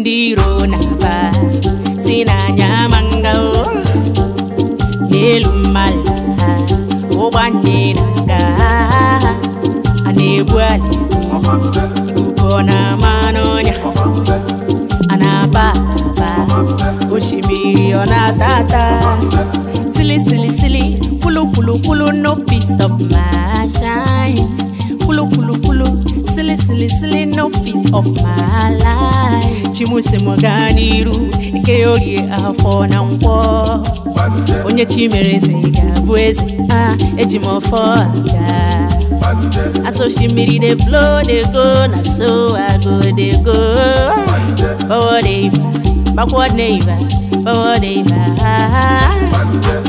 ndị iro na-agba si n'anya mangawo n'elu mmadụ ha ụgbọ nje na-aga a na-egbu na na-ama sili sili sili kwulu kwulu kwulu no pistop ma shine kwulu kwulu kwulu silly, silly, silly, no fit of my life. Chimuse Moganiru, Ikeori afọ na nkwọ. Onye chimereze ga-abụ eze, ah, eji m ọfọ aga. Aso shimiri dey flow dey go, na so I go dey go. Forward eva, backward neighbor, forward eva.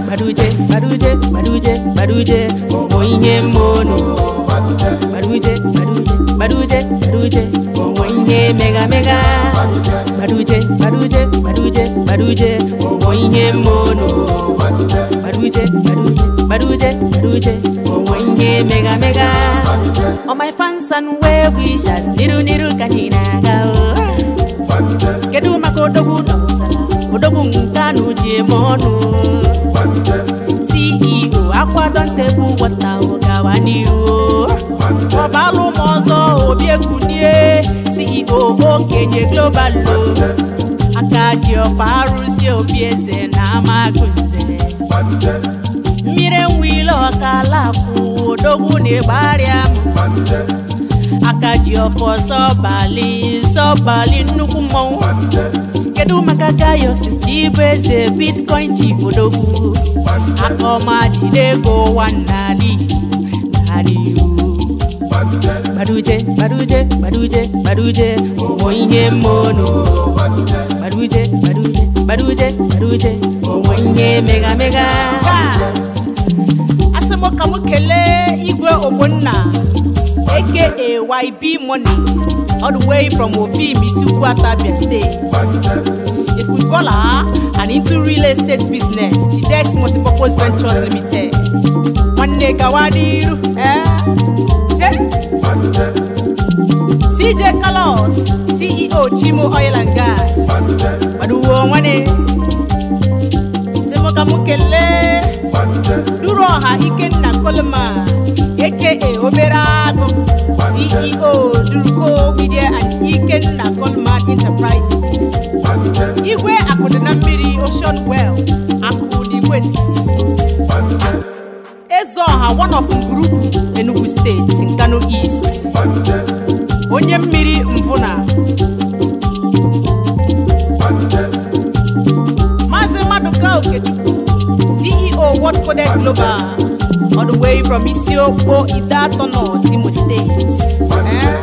Maduje, maduje, maduje, maduje, ọgbọ ihe mmono. baduje onwe oh, mega mega baduje baduje baduje baduje onwe oh, mmono baduje baduje baduje baduje onwe oh, mega mega all my fans niru niru kanyinaga kedu maka odogwu na ụsara odogwu ceo akwadọ ntegbu wọta ọba ló obi sọ òbí èkúnlé CEO okenye global lo akaji ọfa arụsị obi eze na amagunze mmiri nwile ọkala kwụ odogwu na ịgbarịa m akaji ọfọ sọbalị sọbalị nnukwu mmọnwụ kedu maka gaius chibu eze bitcoin chief odogwu akọmadị n'ego ụwa nnali nnali Baduje, Baduje, Baduje, Baduje, ọmọ ihe mmono. Baduje, Baduje, Baduje, Baduje, ọmọ ihe mega mega. Asị m ka m igwe Ogbonna aka YB Money all the way from Obi Misi Ukwu Atabia State. A footballer and into real estate business, Chidex Multipurpose Ventures Limited. Nwanne gawa n'iru. Eh? CJ Carlos CEO Chimo Oil and Gas Baduwo nwane Semoka Duru ọha Ikenna Coleman aka e obere agụ CEO Duruko Media and Ikenna Coleman Enterprises Igwe akụdị na mmiri Ocean Wells akụ West. ha one of Mgurugwu Enugu steeti nkano East onye mmiri mvuna Maazị Maduka Okechukwu CEO World Coded Global all the way from Isiokpo Idatọ North Imo State eh?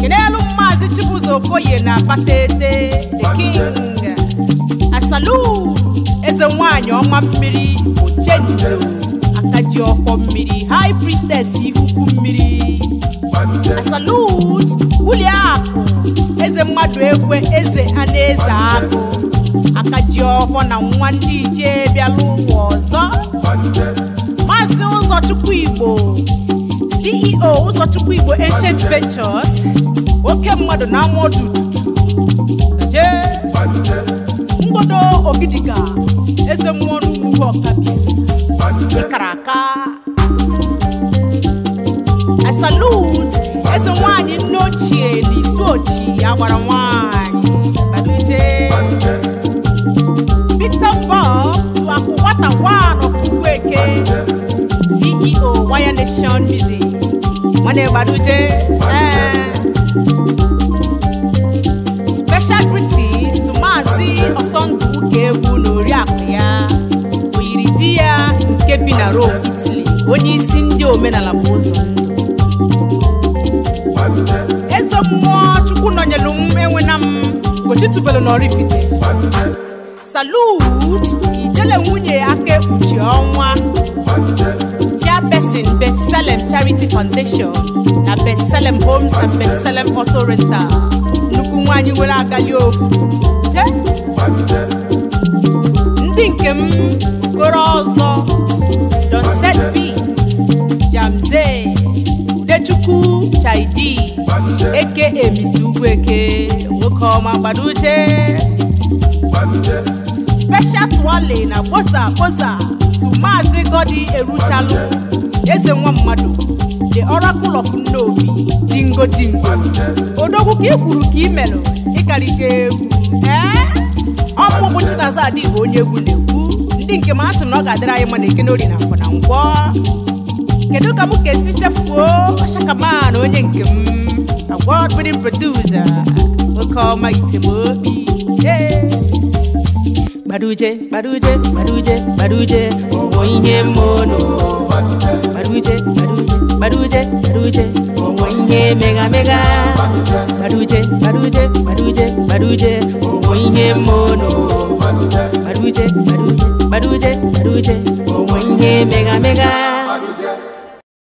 kenelu Maazị Chibuzo Okoye na Akpataete the king asalu eze nwanyị ọma mmiri Ochendo aka ji ọfọ mmiri high priestess ihuku mmiri salut bulie akụ eze mmadụ egwe eze anaeze akụ aka ji ọfọ na nwa ndị ichie bịala ụwa ọzọ maazị ụzọchukwu igbo CEO ụzọchukwu igbo ancient ventures oke mmadụ na amụọdụ tutu mgbodo ogidiga eze mmụọ n'ugwu A salut eze nwanyị nne ochie na isi ochi agbara nwanyị Victor Bob tuaku nwata wan of eh? CEO Wire Nation Music nwanne Baduje special greetings to Maazị Ọsọndụ Egwu na oriakụ ya di ya nke bi na Rome Italy onye isi ndị omenala bụ ụzọ ndụ eze mmụọ chukwu nọnyelu m enwena m gochitubelu na Oraifite salut ijele nwunye aka ekpuchi ọnwa pesin betselem Charity Foundation na Betselem Homes and Betselem Auto nnukwu nwaanyị nwere agali ofu ndị nke m okporo ọzọ Don set beat Jamze Udechukwu Chaidi eke e Mr. Ugwueke nwoke ọma gbaduche Special Twale na kposa kposa tu Maazị Godi eruchalụ eze nwa mmadụ the oracle of nnobi dingo dingo odogwu ka i ka i melụ egwu ee ọmụmụ Chinaza Adigbo onye egwu na ndị nke m asị na ọ ga-adịrị anyị mana eke n'oli na afọ na ngwọ kedu ka m ga-esi chefuo ọchakaman onye nke m mm, na wọld bidin produsa oke ọma itemobi gbaruje gbaruje gbaruje gbaruje ụmụ ihe mmụọ n'ụwa gbaruje gbaruje gbaruje gbaruje ngoinye mega mega baduje baduje baduje baduje ngoinye mono baduje baduje baduje baduje ngoinye mega mega